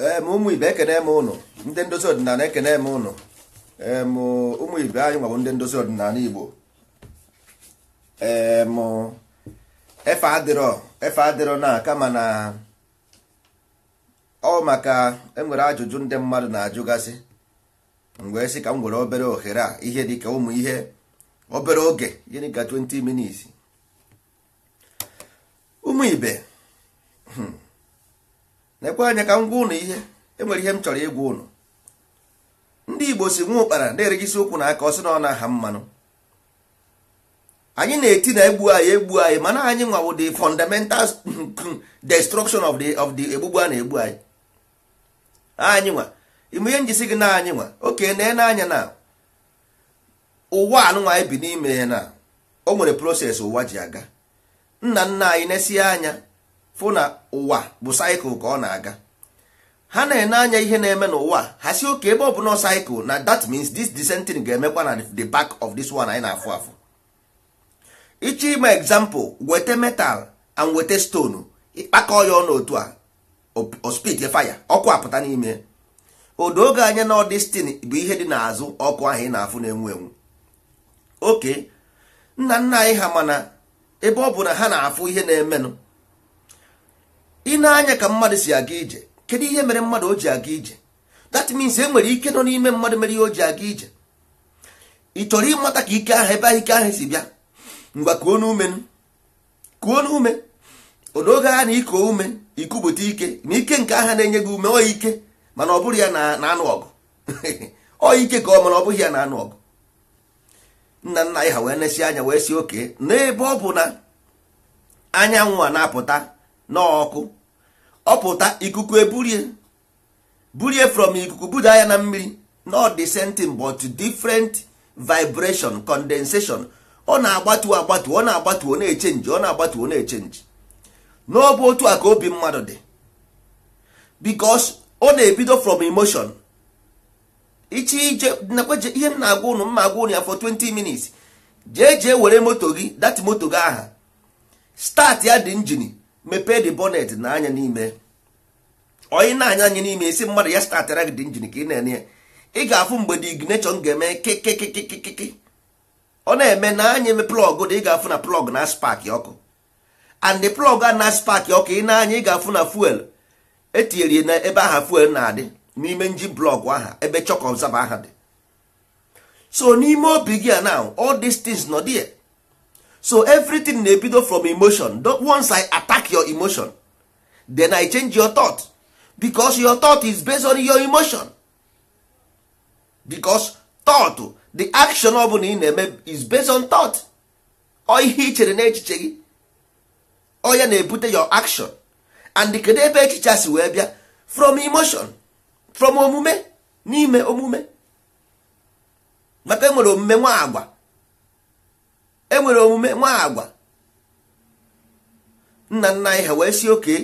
ee eh, ụmụ ibe ekene m ụnụ ndị ndozi ọdịnala ekene m ụnụ ụmụ ibe anyị nwabụ ndị ndozi ọdịnala igbo eh, efe adịrọ efe adịrọ na kama na ọ maka enwere ajụjụ ndị mmadụ na-ajụgasị mgbe sị ka m obere ohere a ihe dịka ụmụ ihe obere oge gịnị ka 20 ụmụ na-ekwe anya ka m gwa ụnụ ihe enwere ihe m chọrọ ịgwa ụnụ ndị igbo si nwa ụkpara na-erigisi ụkwụ na aka ọ si na ọ na-aha mmanụ anyị na-eti na egbu anyị egbu anyị mana anyị nwawo the fundamental destruction of the of the egbugbu a na-egbu anyị anyị nwa ime ihe njisi gị na anyị nwa oke na anya na ụwa anụnwa anyị bi n'ime na o nwere proses ụwa ji aga nna nna anyị na-esi anya fụ na ụwa bụ saịkụl ka ọ na-aga ha na-ene anya ihe na-eme n'ụwa ha si oke ebe ọ bụ na saịkụl na that means this dissenting ga-emekwa na the back of this one anyị na-afụ afụ ịchọ ime example weta metal and weta stone ịkpakọ ya ọnụ otu a ospit fire ọkụ apụta n'ime odo oge anya na ọdestin bụ ihe dị n'azụ ọkụ ahụ ị na-afụ na-enwu enwu oke nna nna anyị ha mana ebe ọ bụ na ha na-afụ ihe na-emenụ ị na-anya ka mmadụ si aga ije kedu ihe mere mmadụ o ji aga ije that means e nwere ike nọ n'ime mmadụ mere ihe o ji aga ije ị chọrọ ịmata ka ike ahụ ebe ahụ ike ahụ si bịa ngwa kuo n'ume kuo n'ume odoge ha na iko ume ikupụta ike na ike nke aha na-enye gị ume ọ ike mana ọ bụrụ ya na anụ ọgụ ọ ike ka ọ mana ọ bụghị ya na anụ ọgụ nna nna anyị ha wee nesi anya wee si oke n'ebe ọ bụ na anyanwụ a na-apụta n'ọkụ ọpụta ikuku eburie burie from ikuku buda ya na mmiri not the same thing but different vibration condensation ọ na-agbatu agbatu ọ na-agbatu ọ na-echenji ọ na-agbatu ọ na-echenji n'ọbụ otu a ka obi mmadụ dị because ọ na-ebido from emotion iche ije nakweje ihe m na-agwa ụnụ mma agwa ụnụ ya for 20 minutes jee jee were moto gị dat moto gị aha start ya dị injini mepee de bọnet na anya n'ime onye na-anya anya n'ime isi mmadụ ya statara gị dị njin ka ị na-ene ya ị ga-afụ mgbe dị ignition ga-eme kekekekekeke ọ na-eme na anya eme plọg dị ị ga-afụ na plọg na spak ọkụ and the plọg a na spak ọkụ ị na-anya ị ga-afụ na fuel etinyere na ebe aha fuel na-adị n'ime nji blọg aha ebe chọkọ ọzaba aha dị so n'ime obi gị a na all these things nọ dị so everything na-ebido from emotion once i attack your emotion then i change your thought because your thought is based on your emotion because thought the action ọ bụla ị na-eme is based on thought ọ ihe i chere n'echiche gị ọ na-ebute your action and kedu ebe echiche si wee bịa from emotion from omume n'ime omume maka enwere omume nwa agwa enwere omume nwa agwa nna nna anyị wee si oke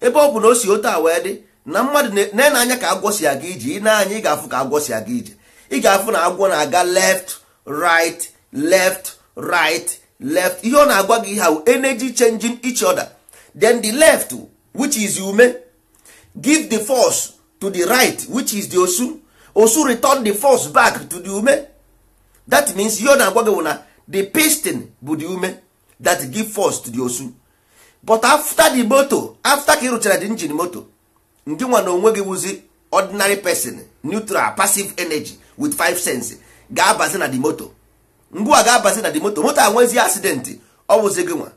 ebe ọ bụ na o si otu awa wee dị na mmadụ na-ene anya ka agwọ si aga ije ị ị ga-afụ ka agwọ si aga ije ị ga-afụ na agwọ na-aga left right left right left ihe ọ na-agwa gị ha energy changing each other then the left which is ume give the force to the right which is the osu osu return the force back to the ume that means ihe ọ na-agwa gị na the piston bu the ume that give force to the osu but after the moto after ka ị na the engine moto ndị nwa na onwe gị wụzi ordinary person neutral passive energy with five cents ga-abazi na the moto mgbe a ga-abazi na the moto moto anwezi accident ọ wụzi gị nwa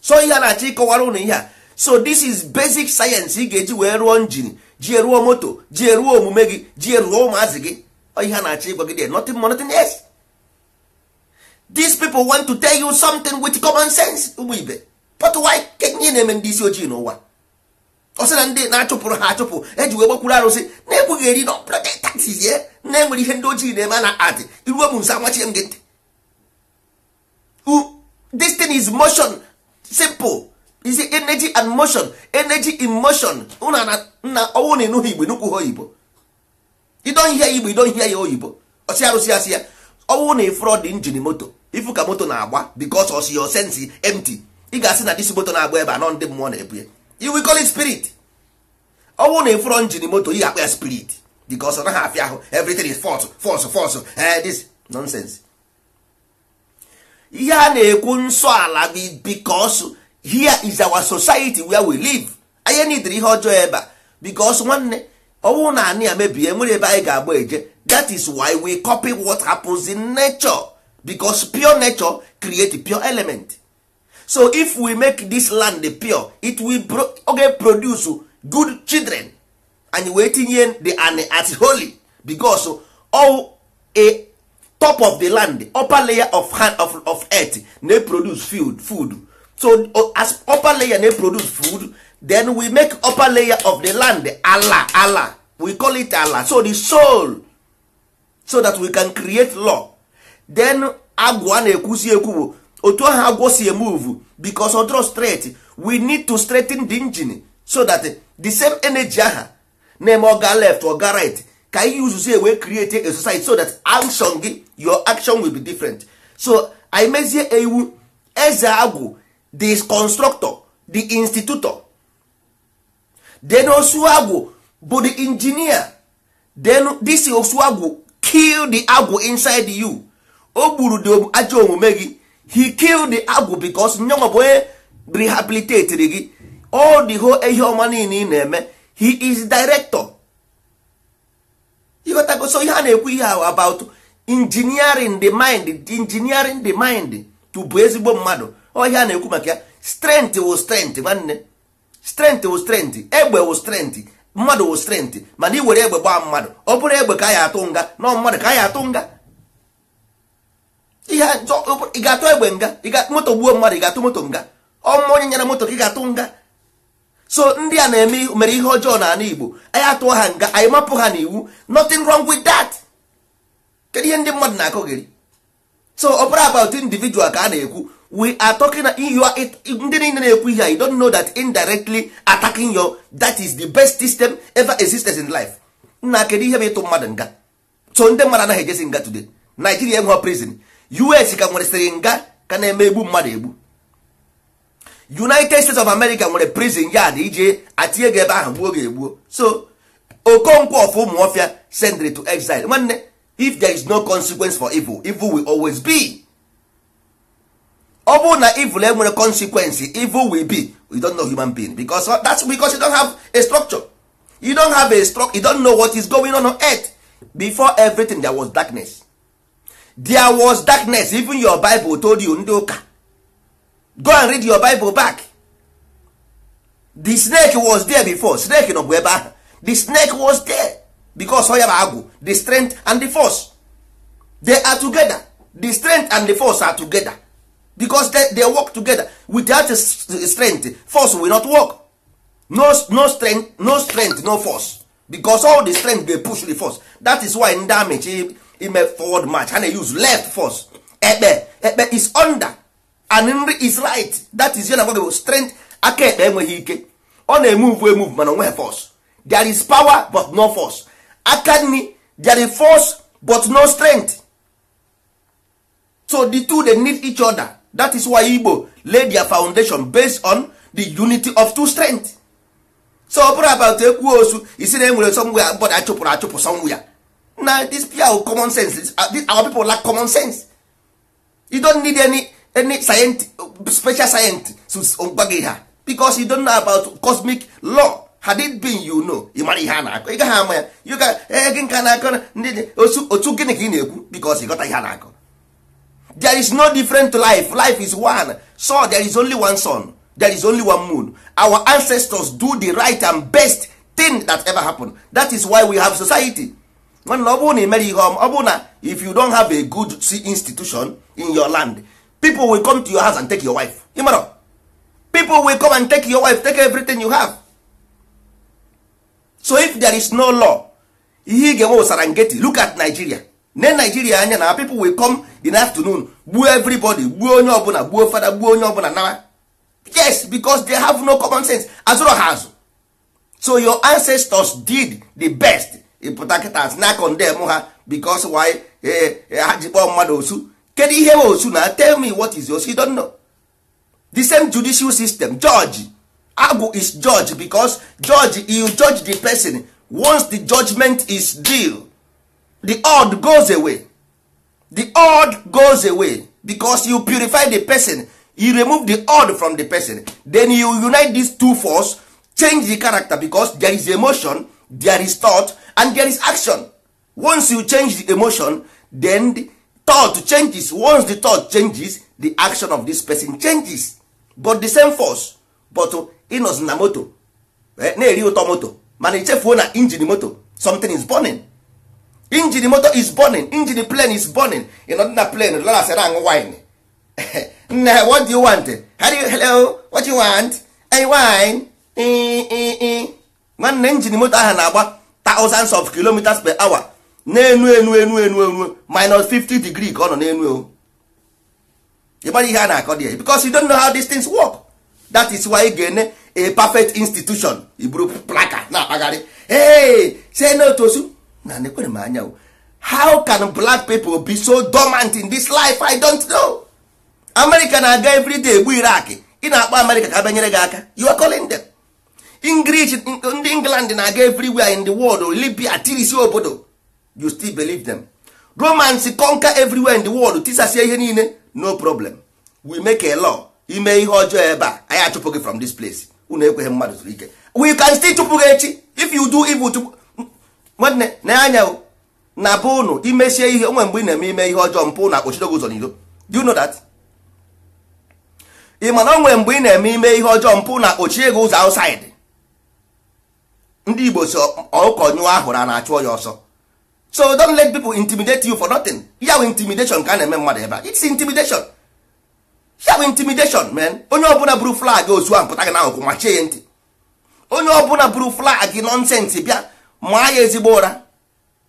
so ihe a na-achọ ịkọwara ụnụ ihe a so this is basic science ị ga-eji wee rụọ njin ji eruo moto ji eruo omume gị ji eruo ụmụazị gị ihe a na-achọ ịgwa gị nothing more nothing less these people want to tell you something with common sense ụmụ ibe but why kenye na-eme ndị isi ojii n'ụwa ọ na ndị na-achụpụrụ ha achụpụ eji wee gbakwuru arụsị na-ekweghị eri na ọbụla taxis ye na enwere ihe ndị ojii na-eme na adị iruo m nso amachie m gị ntị this thing is motion simple is energy and motion energy in motion nna ọnwụ na ịnụghị igbo nụkwughị oyibo you don hear igbo you don hear ya oyibo osi arụsị asị ya ọnwụ na ifrod injin moto ifu ka moto na-agba bikos osi yo sensi empty ị ga-asị na disi moto na-agba ebe anọ ndị mmụọ na-ebunye you will call it spirit ọnwụ oh, na ifrod injin moto ị ga-akpa ya spirit bikos ọ naghị afịa ahụ everything is false false false eh, this nonsense ihe a na-ekwu nsọ ala bikos here is our society where we live anyị nidiri ihe ọjọọ ebe a bikos nwanne ọnwụ na anị ya nwere ebe anyị ga-agba eje that is why we copy what happens in nature because pure nature create pure element so if we make this land pure it will pro okay, produce good children and wee tinye the an at holy because all a top of the land upper layer of hand of, of earth na produce food food so as upper layer na produce food then we make upper layer of the land ala ala we call it ala so the soul so that we can create law then agwa na-ekwusi ekwu bụ otu ahụ agwọ si emove because odro straight we need to straighten the engine so that the same energy aha na-eme oga left oga right ka ihe uzuzu ewee create a society so that action gị your action will be different so i mezie ewu eze agwụ the constructor the institutor then osuagwu bụ the engineer then this osuagwu kill the agwu inside you o gburu the ajọ omume gị he kill the agwu because nyanwa bụ onye rehabilitate gị all the whole ihe ọma niile ị na-eme he is director ịghọtago so ihe a na-ekwu ihe ahụ about engineering the mind engineering the mind to bụ ezigbo mmadụ ọ ihe na-ekwu maka ya strength wụ strength nwanne strent wụ strength egbe wụ strength mmadụ wụ strength mana ị were egbe gbaa mmadụ ọ bụrụ egbe ka anyị atụ nga nọ mmadụ ka anyị atụ nga ị ga-atụ egbe nga moto gbuo mmadụ ị ga-atụ moto nga ọmụma onye nyere moto ka ị ga-atụ nga so ndị a na-eme mere ihe ọjọọ n'ala Igbo anyị atụọ ha nga anyị mapụ ha n'iwu nothing wrong with that kedu ihe ndị mmadụ na-akọgiri so ọ bụrụ about individual ka a na-ekwu we are talking you are ndị niile na-ekwu ihe you don't know that indirectly attacking your that is the best system ever existed in life nna kedu ihe bụ ịtụ mmadụ nga so ndị mmadụ anaghị nga today Nigeria enwe prison US ka nwere sịrị nga ka na-eme egbu mmadụ egbu United States of America nwere prison yard ije atinye gị ebe ahụ gbuo gị egbuo so Okonkwo of Umuofia sendre to exile nwanne if there is no consequence for evil evil will always be ọ bụrụ na evil enwere eh, consequence evil will be you don't know human being because uh, that's because you don't have a structure you don't have a structure you don't know what is going on on earth before everything there was darkness there was darkness even your bible told you ndị ụka go and read your bible back the snake was there before snake nọ bụ ebe ahụ the snake was there because ọ ya bụ agwụ the strength and the force they are together the strength and the force are together because they, they work together without strength force will not work no, no strength no strength no force because all the strength dey push the force that is why damage he ime forward march and he use left force ekpe ekpe is under and nri is right that is yana gwagbo strength aka ekpe enweghị ike ọ na-emove emove mana onweghị force there is power but no force aka nri there is force but no strength so the two they need each other that is why igbo lay their foundation based on the unity of two strength so ọ bụrụ about ekwuo osu isi na enwere somwe ya mbọda achụpụrụ achụpụ somwe ya na this pure common sense uh, our people lack common sense you don't need any any scient special science to um, gị ha because you don't know about cosmic law had it been you know ị mara ihe a na-akọ ị gaghị ama ya you can ee eh, gị nka na-akọ ndị otu gịnị ka ị na-ekwu because ị ihe a na-akọ there is no different life life is one so there is only one sun there is only one moon our ancestors do the right and best thing that ever happened that is why we have society ọ bụrụ na imere ihe ọ na if you don't have a good institution in your land people will come to your house and take your wife know, people will come and take your wife take everything you have so if there is no law ihe ị ga-enwe ụsara ngeti look at Nigeria ne naijiria anya na people will come in afternoon gbuo everybody gbuo onye ọbụla gbuo fada gbuo onye ọbụla nawa yes because they have no common sense azụrụ ha azụ so your ancestors did the best ịpụta kịta na condemn ha because why eh, eh, ha ji kpọọ mmadụ osu kedu ihe bụ osu na tell me what is yours. you don't know the same judicial system judge agwụ is judge because judge you judge the person once the judgment is due the odd goes away the odd goes away because you purify the person you remove the odd from the person then you unite these two force change the character because there is emotion there is thought and there is action once you change the emotion then the thought changes once the thought changes the action of this person changes but the same force but uh, inos na moto eh, na-eri ụtọ moto mana ichefuo na injin moto something is burning injin moto is burning injin plane is burning ị nọ na plane lasara aṅụ wine nne ha what do you want you, hello what do you want a wine nwanne injin moto ahụ na-agba thousands of kilometers per hour na-enu enu enu enu enu minus 50 degree ka ọ nọ n'enu o ị mara ihe a na-akọ dị because you don't know how these things work that is why ị ga-ene a perfect institution iburu plaka na-akpagharị hey say no to su na m anya how can black people be so dormant in this life i don't know america na-aga everyday egbu irak ị na-akpọ america ka banyere gị aka you are calling them english ndị england na-aga everywhere in the world libya tirisi obodo you still believe them romans conquer everywhere in the world tisasie ihe niile no problem we make a law ime ihe ọjọọ ebe a anyị achụpụ gị from this place unu ekweghị mmadụ zuru ike we can still chụpụ gị echi if you do evil to. nwanne na anya na bụ ụnụ imesie ihe onwe mgbe ị na-eme ime ihe ọjọọ mpụ na akpọchidogo ụzọ n'iro do you know that ị mana onwe mgbe ị na-eme ime ihe ọjọọ mpụ na akpọchie ego ụzọ outside ndị igbo si ọkụkọ nyụọ ahụrụ a na-achụ ya ọsọ so don let people intimidate you for nothing ya bụ intimidation ka a na-eme mmadụ ebe a it's intimidation ya bụ intimidation man onye ọbụla buru flag ozu ahụ pụta gị na n'ahụkwụ machie ya ntị onye ọbụla buru flag nọnsensị bịa maa ya ezigbo ụra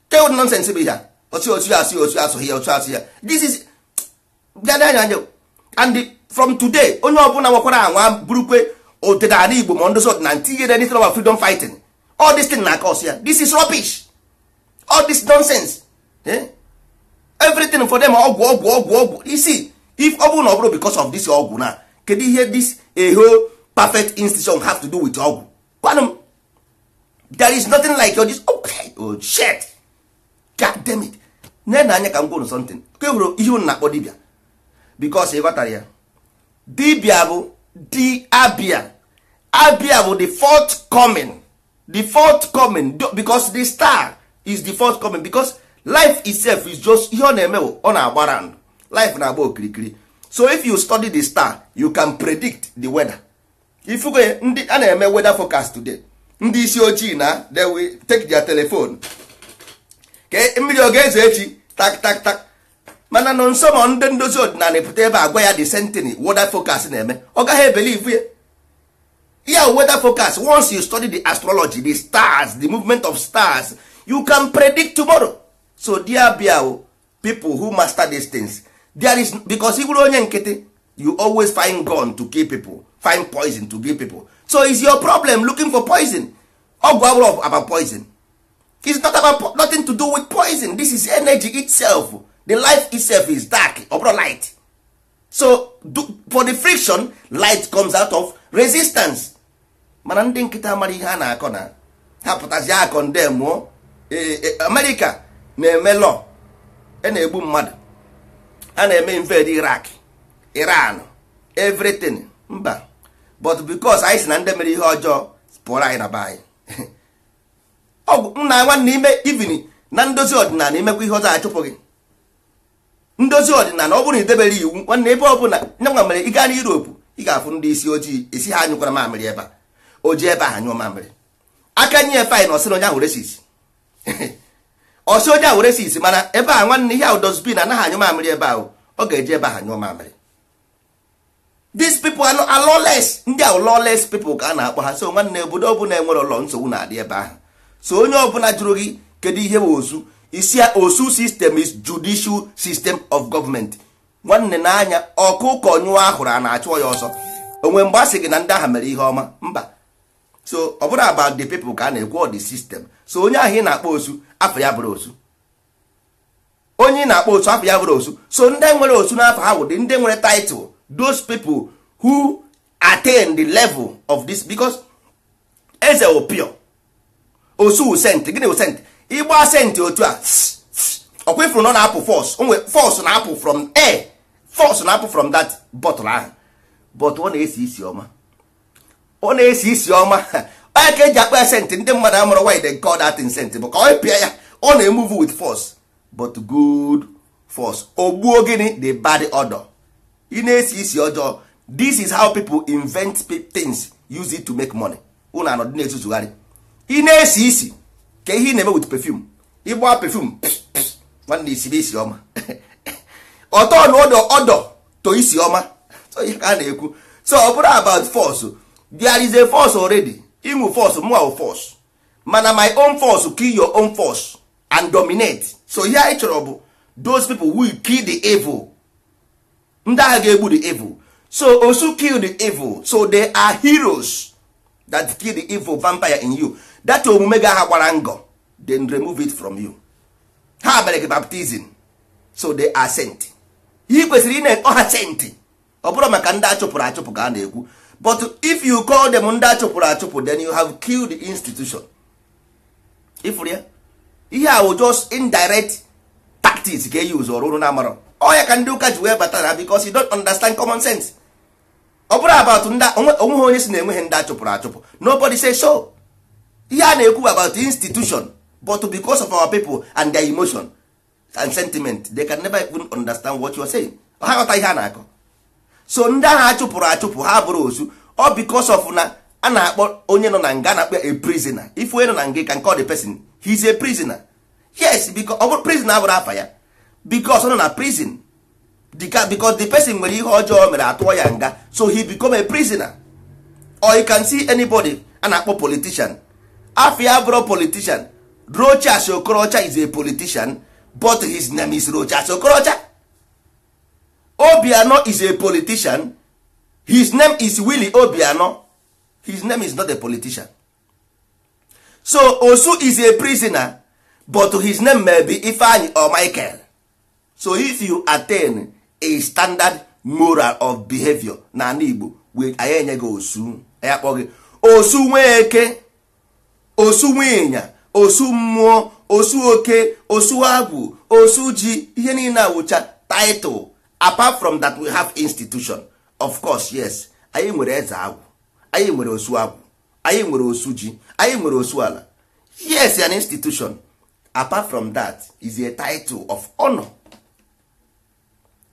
tell nonsense bụ ya otu otu asụ otu asụ ya otu asụ ya this is bịadanya anya and from today onye ọbụla nwekwara anwa burukwe ọdịnala igbo ma ndị na ntinyere anything about freedom fighting all this thing na cause ya this is rubbish all this nonsense eh? everything for them ọgwụ ọgwụ ọgwụ ọgwụ isi if ọ bụrụ na ọ bụrụ because of this ọgwụ na kedu ihe this a perfect institution have to do with ọgwụ there is nothing like your this okay oh shit god damn it nee na anya ka m gwụrụ something ka ị hụrụ ihe unu na-akpọ dibia bikos ị ghọtara ya dibia bụ di abia abia bụ the fourth coming the fourth coming because the star is the fourth coming because life itself is just ihe ọ na-eme bụ ọ na-agbara ndụ life na-agba okirikiri so if you study the star you can predict the weather ifugo ndị a na-eme weather forecast today ndị isi ojii na they will take their telephone ka mmiri ọ ga-ezo echi tak tak tak mana nọ nso ma ndị ndozi ọdịnala pụta ebe agwa ya the sentiny weather focus na-eme ọ gaghị ebelivu ya ya weather focus once you study the astrology the stars the movement of stars you can predict tomorrow so dear biao oh, people who master these things there is because you go onye nkịtị you always find gun to kill people find poison to kill people so is your problem looking for poison ọgwụ abụrụ about poison It's not about nothing to do with poison this is energy itself the life itself is dark ọ light so do, for the friction light comes out of resistance mana ndị nkịta mara ihe a na-akọ na ha pụtazi akọ nde mụọ amerịka na-eme lọ e na-egbu mmadụ a na-eme invade irak iran everything mba but because anyị si na ndị mere ihe ọjọọ pụọrọ anyị na be anyị ọgwụ nna nwanne ime ivin na ndozi ọdịnala imekwa ihe ọzọ achụpụ gị ndozi ọdịnala ọ bụrụ na idebere iwu nwanne ebe ọbụla nye nwa mere ị gaa n'Europe ị ga-afụ ndị isi ojii esi ha anyụkwara mamịrị ebe a o ji ebe ahụ nyụọ mamịrị aka nye efe anyị na ọsị onye ahụ resis ọsị onye ahụ resis mana ebe a nwanne ihe ahụ dozbin anaghị anyụ mamịrị ebe ahụ ọ ga-eji ebe ahụ nyụọ mamịrị these people are lawless ndị a lawless people ka a na-akpọ ha so nwanne obodo bụla enwere ụlọ nsogbu na-adị ebe ahụ so onye ọbụla jụrụ gị kedu ihe bụ osu isi osu system is judicial system of government nwanne n'anya ọkụkọ nyụọ ahụrụ a na-achụ ya ọsọ onwe mgbe a sị gị na ndị aha mere ihe ọma mba so ọ bụrụ about the people ka a na-ekwu dị sistem. so onye ahụ ị na-akpọ osu afọ ya bụrụ osu onye ị na-akpọ osu afọ ya bụrụ osu so ndị nwere osu n'afọ ha wụdị ndị nwere title those people who attain the level of this because eze opio osu sent gịnị wụ sent ịgba sent otu a ọkwa ifuru nọ na-apụ fos nwe fos na-apụ from a fos na-apụ from that bottle ahụ but ọ na-esi isi ọma ọ na-esi isi ọma onye ka eji akpa sent ndị mmadụ amụrụ why they call that sent bụ ka ọ pịa ya ọ with force but good force ogbuo gịnị the bad odor ị na-esi isi ọjọọ this is how people invent things use it to make money ụnụ anọdụ na-ezuzugharị ị na-esi isi ka ihe ị na-eme with perfume ịgba perfume nwanne isi isi ọma ọtọ na ọdọ ọdọ to isi ọma so ihe ka a na-ekwu so ọ bụrụ about force there is a force already ịnwụ force mụa force mana my own force kill your own force and dominate so ihe anyị chọrọ bụ those people will kill the evil ndị agha ga-egbu the evil so osu kill the evil so they are heroes that kill the evil vampire in you that omume ga ha gbara ngọ then remove it from you ha mere gị baptizim so they are sent ihe kwesịrị ị na-ọha sent ọ bụrụ maka ndị achụpụrụ achụpụ ka a na-ekwu but if you call them ndị achụpụrụ achụpụ then you have killed the institution ifụrụ ya ihe a wụ just indirect tactics ga-eyuz ọrụ ụrụ na amarọ ọya ka ndị ụka ji wee batara bikos you don't understand common sense ọ bụrụ about onweghị onye si na enweghị ndị achụpụrụ achụpụ nobody say so ihe a na-ekwu about institution but because of our people and their emotion and sentiment they can never even understand what you are saying ha ghọta ihe a na-akọ so ndị ahụ achụpụrụ achụpụ ha bụrụ ozu ọ because of na a na-akpọ onye nọ na nga na-akpọ a prisoner if onye nọ na nga ka nke ọ dị person he a prisoner yes because ọ bụrụ prisoner abụrụ afa ya because ọ nọ na prison because the person nwere ihe ọjọọ mere atụọ ya nga so he become a prisoner or you can see anybody a na-akpọ politician afia bụrụ politician rocha okorocha is a politician but his name is rocha okorocha obiano is a politician his name is willy obiano his name is not a politician so osu is a prisoner but his name may be ifeanyi or michael so if you attain a standard moral of behavior n'ala Igbo wee anyị enye gị osu ya kpọ gị osu eke osu ịnya osu mmụọ osu oke osu agwụ osu ji ihe niile awụcha title apart from that we have institution of course yes anyị nwere eze agwụ anyị nwere osu agwụ anyị nwere osu ji anyị nwere osu ala yes an institution apart from that is a title of honor.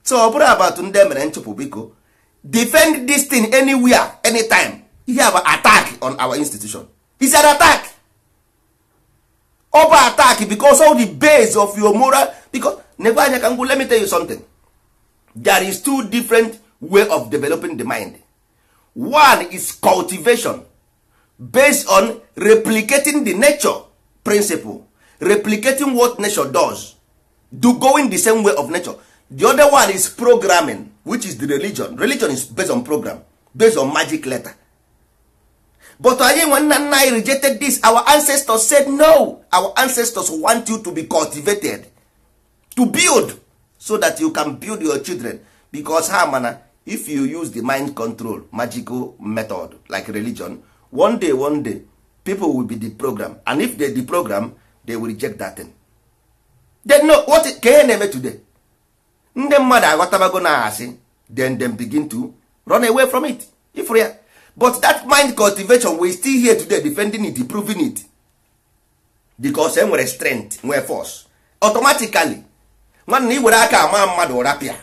so ọ bụrụ abatụ ndị emere nchụpụ biko defend this thing anywhere anytime ihe bụ attack on our institution is an attack ọ attack because all the base of your moral because nekwe anya ka let me tell you something there is two different way of developing the mind one is cultivation based on replicating the nature principle replicating what nature does do going the same way of nature the other one is programming which is the religion religion is based on program based on magic letter but anyị nwe nna anyị rejected this our ancestors said no our ancestors want you to be cultivated to build so that you can build your children because ha mana if you use the mind control magical method like religion one day one day people will be the program and if they the program they will reject that thing. They know what can ihe na today ndị mmadụ aghọtabago na asị then dem begin to run away from it ifụrụ ya but that mind cultivation we still here today defending it proving it because e nwere strength nwee force automatically nwanna i were aka ama mmadụ rapịa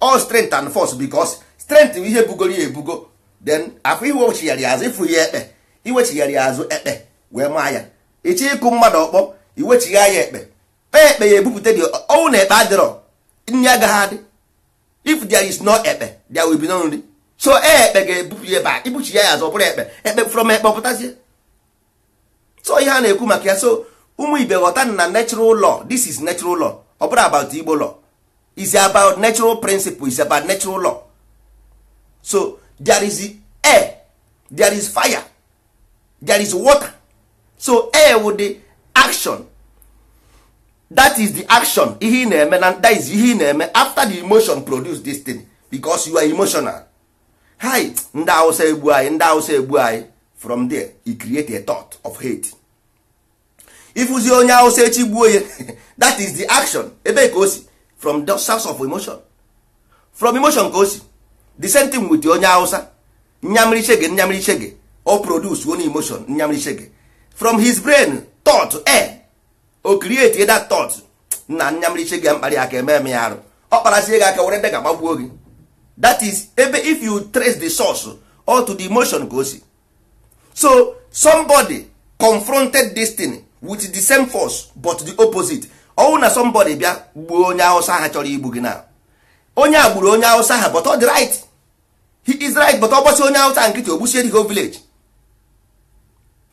all strength and force because strength bụ ihe bugoro ya ebugo then afọ iwechigharị azụ ịfụrụ ya ekpe iwechigharị azụ ekpe wee maa ya ịchọ ịkụ mmadụ ọkpọ iwechigha ya ekpe kpee ekpe ya ebupụta dị ọnwụ na ekpe adịrọ nri agaghị adị if there is no ekpe there will be no nri so e, ekpe ga-ebupụ ya ebe ibuchi ya ya azọ bụrụ ekpe ekpe from ekpe pụtazie so ihe a na-ekwu maka ya so ụmụ ibe ghọta na natural law this is natural law ọ bụrụ about igbo law is about natural principle is about natural law so there is air there is fire there is water so air with the action that is the action ihe ị na-eme na that is ihe ị na-eme after the emotion produce this thing because you are emotional hi ndị awụsa egbu anyị ndị awụsa egbu anyị from there he create a thought of hate ịfụzi onye awụsa echi gbuo ya that is the action ebe ka o si from the source of emotion from emotion ka o si the same thing with onye awụsa nyamriche gị nyamriche gị o produce one emotion nyamriche gị from his brain thought air o create that thought na nyamriche gị mkparị aka eme eme ya arụ ọ kparasie gị aka were ndị ga-agbagbuo gị that is ebe if you trace the source or to the emotion ka o si so somebody confronted this thing with the same force but the opposite ọnwụ na somebody bịa gbuo onye awụsa ha chọrọ igbu gị na onye a gburu onye awụsa ha but ọ dị right he is right but ọ gbasi onye awụsa nkịtị ogbusie the whole village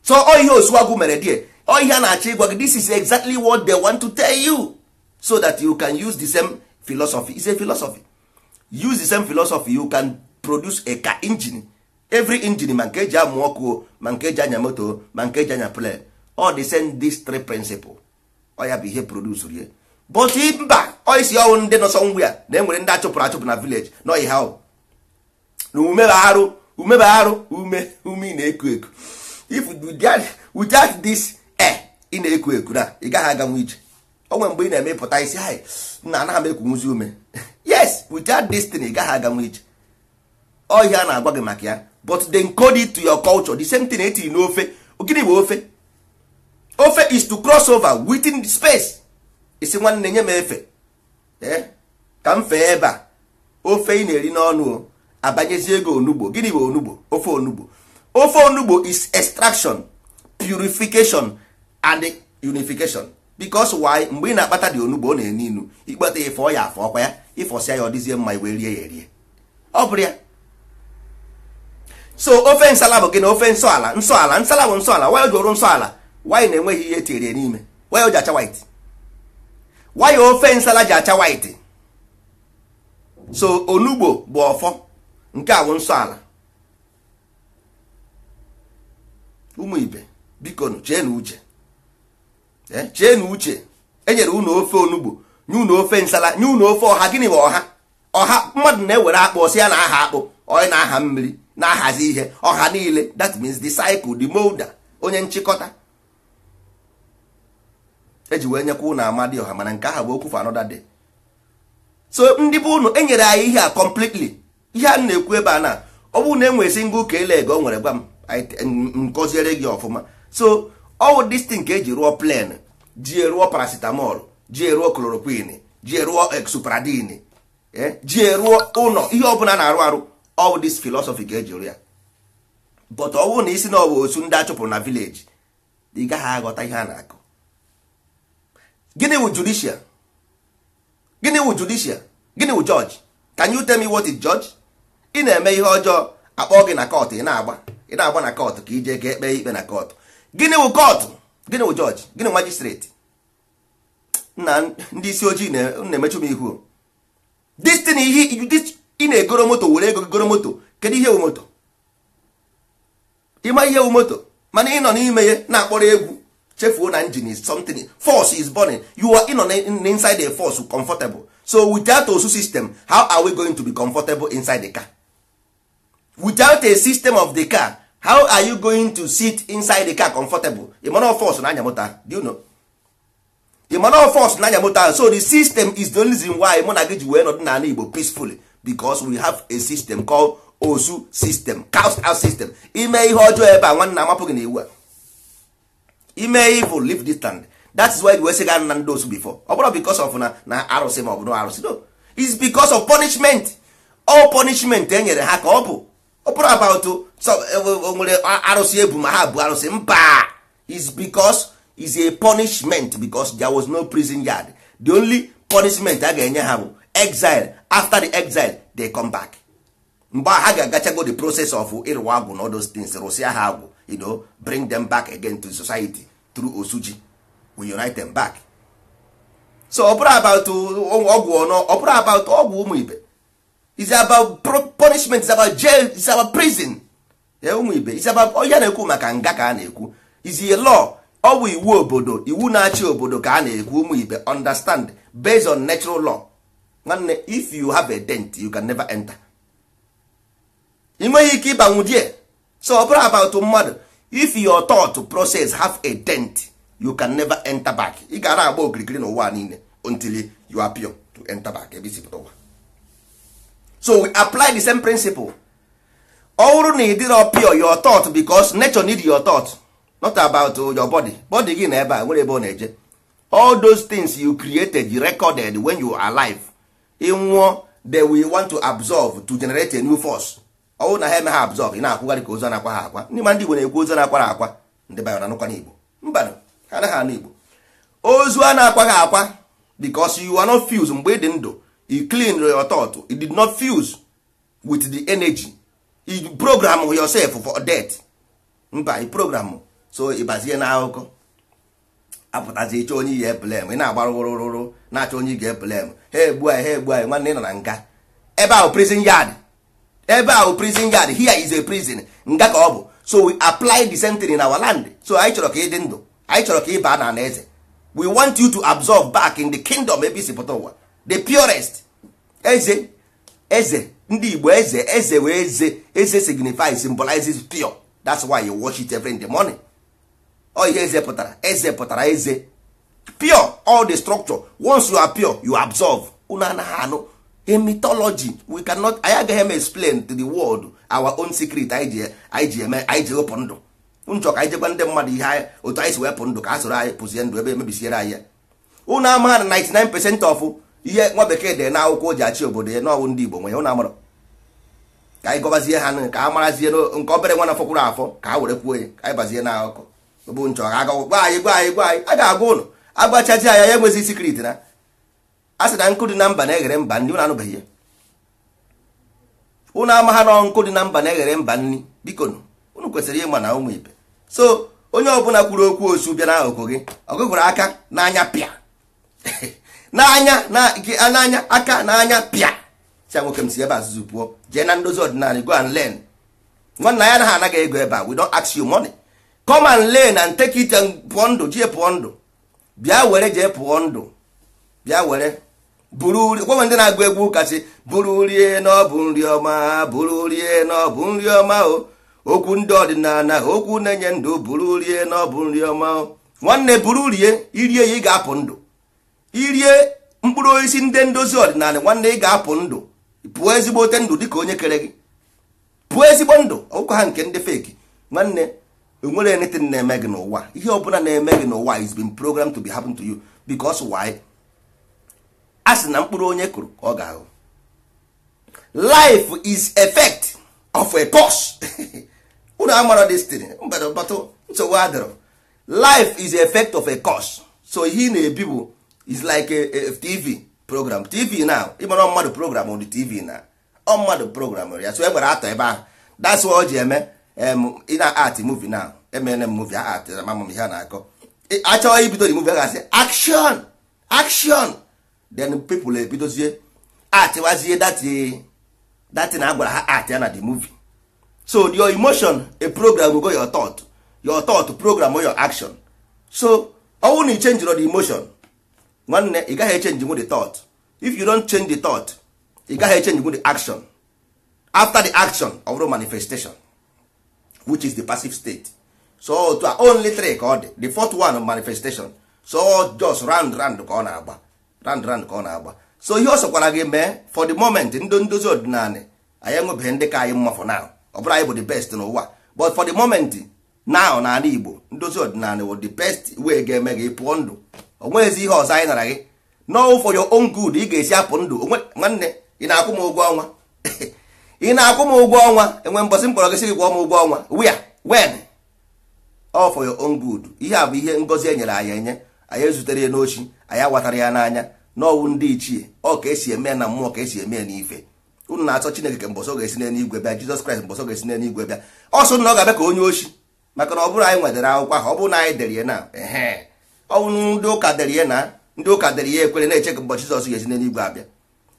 so ọ ihe osuwagu mere die ihe a na-achọ ịgwa gị this is exactly what they want to tell you so that you can use the same philosophy Is a philosophy use the same philosophy you can produce a car engine every engine ma nke eji amụ ọkụ ma nke eji anya moto ma nke eji anya plan all the same these three principle Or you bụ ihe produce rie but mba oisi ọnwụ ndị nọ sọnwụ ya na enwere ndị achụpụrụ achụpụ na village na ọyị ha na ume ume ị na-eku eku if we get this Eh, ị na-eku eku na ị gaghị aganwu ije onwe mgbe ị na-eme ịpụta isi anyị na anaghị m ekwunwuzi ume yes without destiny ị gaghị aganwu ije ọhịa a na-agwa gị maka ya but they encode to your culture the same thing etiri n'ofe gịnị bụ ofe ofe is to cross over within space isi nwanne nye m efe eh, ka m fee ebe a ofe ị na-eri n'ọnụ abanyezi ego onugbo gịnị bụ onugbo ofe onugbo ofe onugbo is extraction purification and unification because why mgbe ị na-akpata dị onugbo ọ na-enu inu ikpata ya fọọ ya afọ ọkwa ya ịfọsịa ya ọ dịzie mma iwe rie ya erie ọ bụrụ ya so ofe nsala bụ gị ofe nsọ ala nsala bụ nsọ ala waya jụrụ nsọ ala na-enweghị ihe etinyere n'ime waya ji acha white waya ofe nsala ji acha white so onugbo bụ ọfọ nke a bụ nsọ ala ụmụ ibe biko cheenu uche chee na uche enyere unu ofe onugbo nye unu ofe nsala nye unu ofe ọha gịnị bụ ọha ọha mmadụ na-ewere akpụ si ya na aha akpụ onye na-aha mmiri na-ahazi ihe ọha niile that means the cycle the molder onye nchịkọta eji wee nyekwa ụnụ amadi ọha mana nke aha bụ okwu for another day so ndị bụ ụnụ enyere anyị ihe a completely ihe a na-ekwu ebe a na ọ bụrụ na enwere single ka ele ego o nwere gwa m nkọziere gị ọfụma so ọwụ destin ka eji rụọ plan ji eruo paracetamol ji eruo chloroquine ji eruo exupradine eh, eh, ji eruo ụlọ ihe ọbụla na-arụ arụ all this philosophy ga-eji ya but ọ bụrụ na isi na ọ bụ otu ndị achụpụrụ na village ị gaghị aghọta ihe a na-akụ gịnị wụ judicial gịnị wụ gịnị wụ judge can you tell me what is judge ị na-eme ihe ọjọọ akpọ gị na kọtụ ị na-agba ị na-agba na kọtụ ka ije ga ekpe ikpe na kọtụ gịnị wụ kọtụ gịnị wụ jọji gịnị majistreti na ndị isi ojii na-emechu m ihu destin ihe ị na-egoro moto were ego goro moto kedu ihe wu moto ịma ihe wu moto mana ị nọ n'ime ya na-akpọrọ egwu chefuo na engine is something force is burning you are ịnọ inside a force comfortable so without osu system how are we going to be comfortable inside the car without a system of the car how are you going to sit inside the car comfortable ịmana force na anya moto do you know ịmana force na anya moto so the system is the only reason why mụ na gị ji wee nọdụ n'ala Igbo peacefully because we have a system called osu system cast out system ime ihe ọjọọ ebe a nwanna, amapụ gị na iwu a ime evil leave this land that is why we sị na ndị osu before ọ bụrụ because of na na arụsị ma ọ bụ na arụsị no it's because of punishment all punishment e nyere ha ka ọ bụ ọ bụrụ about nwere arụsị ebu ma ha bụ arụsị mba is because is a punishment because there was no prison yard the only punishment a ga-enye ha bụ exile after the exile they come back mgbe ha ga-agachago the process of ịrụwa agwụ na all those things rụsịa ha agwụ you know, bring them back again to society through osuji we unite them back so ọ bụrụ about ọgwụ about ọgwụ ụmụ ibe is about punishment is about jail is about prison ụmụ ibe is about onye na-ekwu maka nga ka a na-ekwu is a law ọ bụ iwu obodo iwu na-achị obodo ka a na-ekwu ụmụ ibe understand based on natural law nwanne if you have a dent you can never enter ị nweghị ike ịbanwu die so ọ bụrụ about mmadụ if your thought process have a dent you can never enter back ị gara agba okirikiri n'ụwa niile until you appear to enter back ebe isi pụta ụwa so we apply the same principle ọ bụrụ na ị dịrọ pure your thought because nature need your thought not about uh, your body body gị na ebe a nwere ebe ọ na-eje all those things you created you recorded when you are alive ịnwụọ they we want to absorb to generate a new force ọ bụrụ na ha eme ha absorb ị na-akwụgharị ka ozo na-akwa ha akwa ndị ma ndị Igbo na-ekwu ozo na-akwara akwa ndị bayo na anụkwa n'Igbo mba ha anaghị anụ Igbo ozu a na-akwa ha akwa because you are not fused mgbe ị dị ndụ e clean your thought It did not fuse with the energy e program yourself for death mba e program so ịbazie na akụkọ apụtazi ịchọ onye ihe blem ị na-agba rụrụrụrụ na-achọ onye ga blem ha egbu anyị ha egbu anyị nwanne ị nọ na nga ebe ahụ prison yard ebe ahụ prison yard here is a prison nga ka ọ bụ so we apply the thing in our land so anyị chọrọ ka ị dị ndụ anyị chọrọ ka ị baa na eze we want you to absorb back in the kingdom ebe isi pụta ụwa the purest eze eze ndị igbo eze eze wee eze eze signifies symbolizes pure that's why you wash it every in the morning ọ ihe eze pụtara eze pụtara eze pure all the structure once you are pure you absorb unu anaghị anụ a mythology we cannot anyị agaghị eme explain to the world our own secret anyị ji eme anyị ji wepụ ndụ nchọ ka anyị jegwa ndị mmadụ ihe otu anyị si wepụ ndụ ka a soro anyị pụzie ndụ ebe emebisiere anyị ya unu amaghị 99 percent of ihe nwa bekee dee na akwụkwọ ji achị obodo ya n'ọwụ ndị Igbo nwe ya ka anyị gọbazie ha ka a marazie nke obere nwa na fọkwụrụ afọ ka a were kwuo ya ka anyị bazie na akụkọ bụ nchọ ha aga gwa anyị gwa anyị gwa anyị a ga-agwa ụlọ agbachazi anya ya enwezi sikriti na a sị na nkụ dị na mba na-eghere mba nri ụnụ anụbeghị ya ụnụ ama ha nọ nkụ dị na mba na-eghere mba nri biko ụnụ kwesịrị ịma na ụmụ ibe so onye ọbụla kwuru okwu osu bịa n'akụkụ gị ọgụgụrụ aka n'anya pịa n'anya n'anya aka n'anya pịa si nwoke m si ebe azụzụ pụọ jee na ndozi ọdịnala go and learn nwanna ya anaghị anaghị ego ebe a we don't ask you money come and learn and take it and pụọ ndụ jee pụọ ndụ bịa were jee pụọ ndụ bịa were buru gwanwe ndị na-agụ egwu kasị buru rie n'ọbụ nri ọma buru rie n'ọbụ nri ọma o okwu ndị ọdịnala okwu na-enye ndụ buru rie n'ọbụ nri ọma o nwanne buru rie irie ya ị ga-apụ ndụ irie mkpụrụ osisi ndị ndozi ọdịnala nwanne ị ga-apụ ndụ pụọ ote ndụ dịka onye kere gị pụọ ezigbo ndụ ọkụkọ ha nke ndị feki nwanne enwere anything na-eme gị n'ụwa ihe ọbụla na-eme gị n'ụwa is been programmed to be happen to you because why a sị na mkpụrụ onye kụrụ ka ọ ga-ahụ life is effect of a pause unu amara destin mbadọbatụ nsogbu adịrọ life is effect of a cause so ihe ị na-ebi bụ is like a, a tv program tv now ịmara mmadụ program on the tv na ọ mmadụ program ya so egbere atọ ebe ahụ that's why o ji eme ị na art movie now emene m movie art ma mama m ihe a na-akọ achọghị ibido the movie a gasị action action then people ebidozie atịwazie dati e, na agwara ha art ya na the movie so your emotion a program go your thought your thought program or your action so ọnwụ na ichenjiro the emotion nwanne ị gaghị echenji nwu the thought if you don't change the thought ị gaghị echenji nwu the action after the action of the manifestation which is the passive state so to only three ka ọ dị the fourth one manifestation so just round round ka ọ na-agba round round ka ọ na-agba so ihe ọ sọkwara gị mee for the moment ndị ndozi ọdịnala anyị enwebeghị ndị ka anyị mma for now ọ bụrụ anyị bụ the best n'ụwa but for the moment now na ala igbo ndozi ọdịnala wụ the best way ga-eme gị pụọ ndụ onweghịzi ihe ọzọ anyị nara gị n'ọwụ for your own good ị ga-esi apụ ndụ nwanne ị na-akwụ m ụgwọ ọnwa ị na-akwụ m ụgwọ ọnwa enwe mbọsị kpọrọ gị sị gị m ụgwọ ọnwa where when all for your own good ihe a bụ ihe ngozi e nyere anyị enye anyị ezutere ya n'ochi anyị awatara ya n'anya n'ọwụ ndị ichie ọ ka esi eme na mmụọ ka esi eme n'ife unu na-achọ chineke ka mbọsọ ga-esi n'eluigwe bịa jizọs kraịst mbọsọ ga-esi n'eluigwe bịa ọ sụ na ọ ga-abịa ka onye ochi maka na ọ bụrụ anyị nwetara akwụkwọ ahụ ọ bụrụ na anyị dere ya na ọnwụ ndị ụka dere ya na ndị ụka dere ihe ekwere na-eche ka ụbọchị Jizọs ga-esi n'eluigwe abịa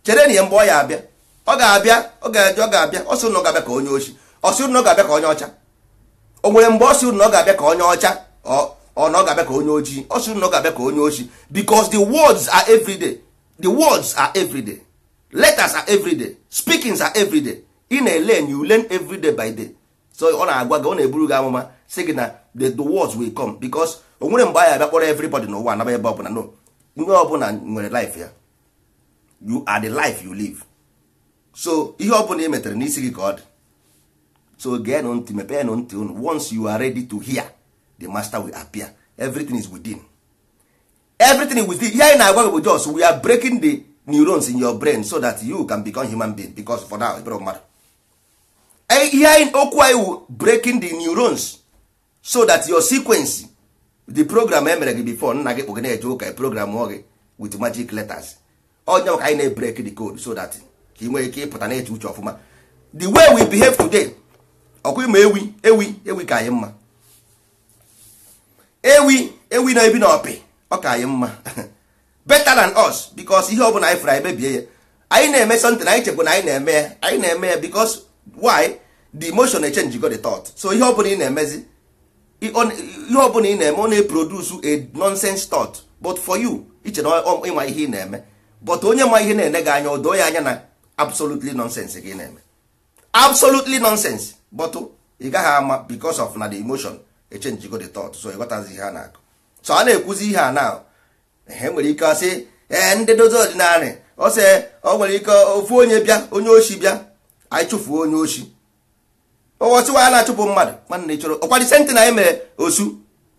chere na ihe mgbe ọ ya abịa ọ ga-abịa ọ ga-eje ọ ga-abịa ọ sị ụnụ ga-abịa ka onye ochi ọ sị ga-abịa ka onye ọcha o nwere mgbe ọ sị ga-abịa ka onye ọcha ọ ọ ga-abịa ka onye ojii ọ sị ga-abịa ka onye ochi because the words are everyday the words are everyday letters are everyday speakings are everyday na ele you learn everyday by day so ọ na-agwa gị eburu gị amụma sị gị na the words will come because onwere mgbe buy abịa kpọrọ everybody n'ụwa anaba ebe ọbụla no onye ọbụla nwere life ya you are the life you live so ihe ọbụla ị metere n'isi gị ka ọ dị so geenụ ntị mepee ntị unu once you are ready to hear the master will appear everything is within everything is within ihe anyị na-agwa gị bụ jos we are breaking the neurons in your brain so that you can become human being because for now ịbụrụ mmadụ ihe anyị okwu anyị wu breaking the neurons so that your sequence the program emere gị before nna gị kpụ gị na-eje ụka program gị wit magic letters onye maka anyị na-ebrek the code so that ka ị nwee ike ịpụta na-eche uche ọfụma the way we behave today ọkwa ịma ewi ewi ewi ka anyị mma ewi ewi na ebi na ọpị ọ ka anyị mma better than us because ihe ọ bụla anyị fụrụ anyị mebie ya anyị na-eme something anyị chekwa na anyị na-eme ya anyị na-eme ya because why the emotion na-echenji go the thought so ihe ọ bụla ị na-emezi ihe ọbụla ị na-eme ọ na-eproduce a nonsense thought but for you iche na ịma ihe ị na-eme but onye ma ihe na-ene gị anya odoo ya anya na absolutely nonsense gị na-eme absolutely nonsense but ị gaghị ama because of na the emotion echenji go the thought so ịghọtazi ihe a na-akụ so a na-ekwuzi ihe a na e nwere ike asị ee ndị dozi ọ e, nwere ike ofu onye bịa onye oshi bịa anyị chụfuo onye oshi ọwọsiwa ya na-achụpụ mmadụ nwanne ị chọrọ ọkwa disenti na emere osu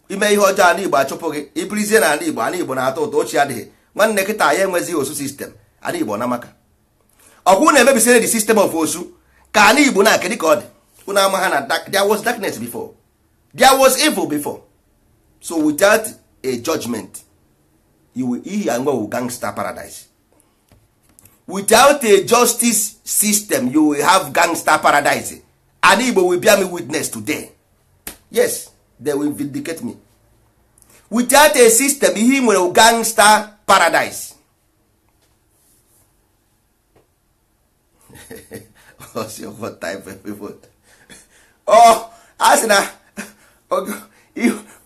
ime ihe ọjọọ ala igbo achụpụ gị ibirizie na ala igbo ala igbo na-atọ ụtọ ochie adịghị nwanne kịta ya enwezighị osu sistem ala igbo na maka ọkwụ na-emebisire dị system of osu ka ala igbo na-aka ka ọ dị unu ama ha na there was darkness before there was evil before so without a judgment ihi anwewu gangster paradise without a justice system you will have gangster paradise and igbo will bear me witness today yes they will vindicate me without a system ihe nwere gangster paradise what type of people? oh a sị na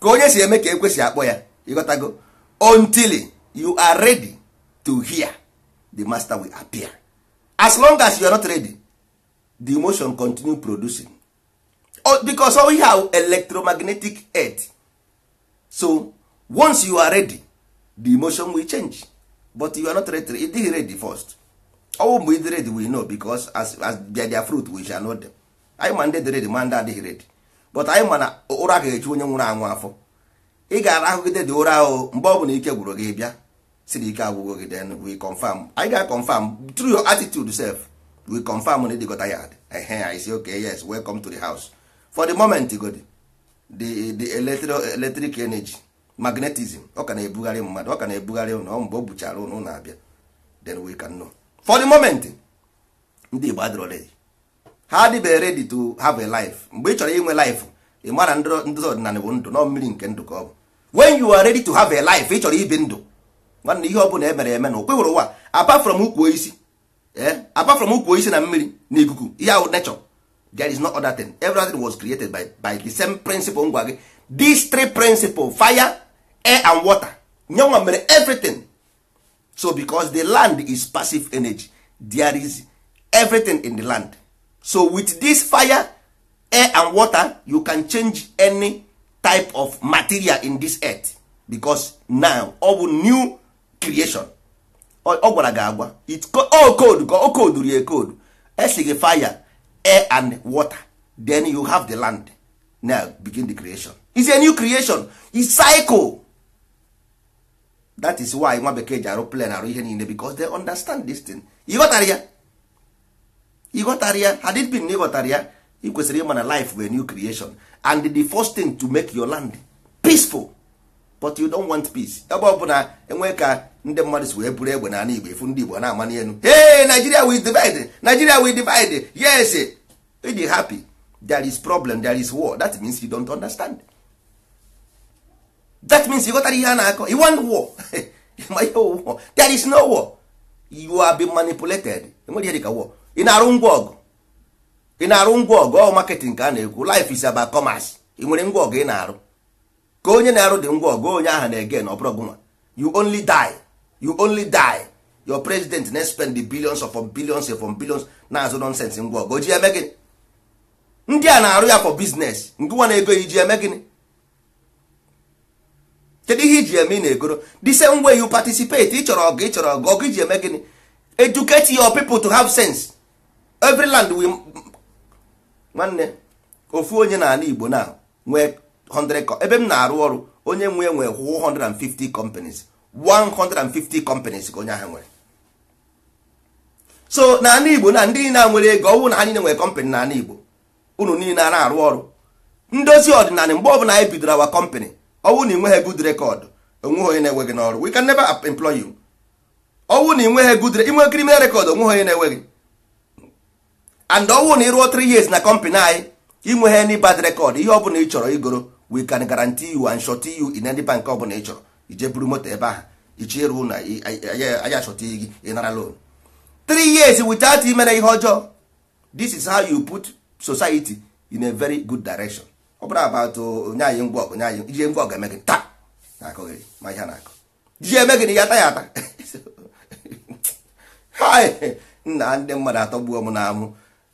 ka onye si eme ka ekwesị akpọ ya ịghọtago until you are ready to hear the master will appear as long as you are not ready the emotion continue producing oh, because all we have electromagnetic earth so once you are ready the emotion will change but you are not ready it is ready first ọwụ mgbe ịdị ready we know because as, as they their fruit we shall know them anyị ma ndị dị ready ma ndị adịghị ready but anyị ma na ụra ga-echu onye nwụrụ anwụ afọ ị gara ahụgide dị ụra ahụ mgbe ọ bụla ike gwụrụ gị bịa siri ike agwụgo gị then we confirm anyị ga confirm through your attitude self we confirm na ịdịgo tired ehe i say okay yes welcome to the house for the moment god the the electro, electric energy magnetism ọ ka na-ebugharị mmadụ ọ ka na-ebugharị ụnụ mgbe o buchara ụnụ na-abịa then we can know for the moment ndị Igbo adịrọ ready ha adịbeghị ready to have a life mgbe ị chọrọ inwe life ị mara ndị ọdịnala bụ ndụ nọ mmiri nke ndụ ka ọ bụ when you are ready to have a life ị chọrọ ibi ndụ nwanne ihe ọ bụla emere eme na okwe hụrụ ụwa apart from ukwu isi Eh? apart from ukwu isi na mmiri na ikuku ihe ahụ nature there is no other thing everything was created by, by the same principle ngwa gị these three principle fire air and water nyenwa mere everything so because the land is passive energy there is everything in the land so with this fire air and water you can change any type of material in this earth because now ọ bụ new creation ọ gwara gị agwa o code ka o code rie code esi gị fire air and water then you have the land now begin the creation is a new creation is cycle that is why nwa bekee ji arụ plan arụ ihe niile because they understand this thing ịghọtara ya ịghọtara ya had it been na ịghọtara ya ị kwesịrị ịma na life bụ a new creation and the first thing to make your land peaceful but you don't want peace ebe ọ bụla enwee ka ndị mmadụ si wee bụrụ egbe na ala Igbo efu ndị Igbo na-ama n'elu hey Nigeria we divide Nigeria we divide yes ịdị happy there is problem there is war that means you don't understand that means you ghọtara ihe a na-akọ you want war ma ihe war there is no war you are being manipulated enwere ihe dịka war ị na-arụ ngwa ọgụ ị na-arụ ngwa ọgụ ọ marketing ka a na-ekwu life is about commerce ị nwere ngwa ọgụ ị na-arụ ka onye na-arụ dị ngwa ọgụ onye ahụ na-ege na ọ bụrụ you only die you only die your president na spend the billions of billions of billions na-azụ nonsense ngwa ọgụ oji eme gịnị ndị a na-arụ ya for business ngụwa na ego iji eme gịnị kedu ihe iji eme ị na-egoro the same way you participate ị chọrọ ọgụ ị chọrọ ọgụ ọgụ iji eme gịnị educate your people to have sense every land we nwanne ofu onye n'ala Igbo na nwee 100 ebe m na-arụ ọrụ onye nwe nwee 150 companies 150 companies ka onye ahụ nwere so n'ala igbo na ndị niile nwere ego ọnwụ na anyị niile nwere kọmpanị n'ala igbo unu niile a na-arụ ọrụ ndozi ọdịnala mgbe ọbụla anyị bidoro awa kọmpanị ọnwụ na ịnweghị good record onweghị onye na enweghị n'ọrụ we can never employ you ọnwụ na ịnweghị good inwe criminal rekọd onweghị onye na enweghị gị and ọnwụ na ịrụọ 3 years na kọmpanị anyị inweghị any bad rekọd ihe ọbụla ị chọrọ igoro we can guarantee you and shorty you in any bank ọbụla ị chọrọ ije buru moto ebe ahụ ichie ruo na anyị achọta gị ịnara loan three years without imere ihe ọjọọ this is how you put society in a very good direction ọ bụrụ about onye anyị ngwa ọgụ anyị ije ngwa ọgụ eme gị taa na-akọghị ma ihe na akụ ji eme gị na ya ata ya ata nna ndị mmadụ atọ atọgbuo m na amụ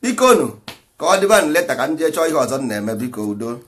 biko nu ka ọ dịba n leta ka m jee chọọ ihe ọzọ m na-eme biko udo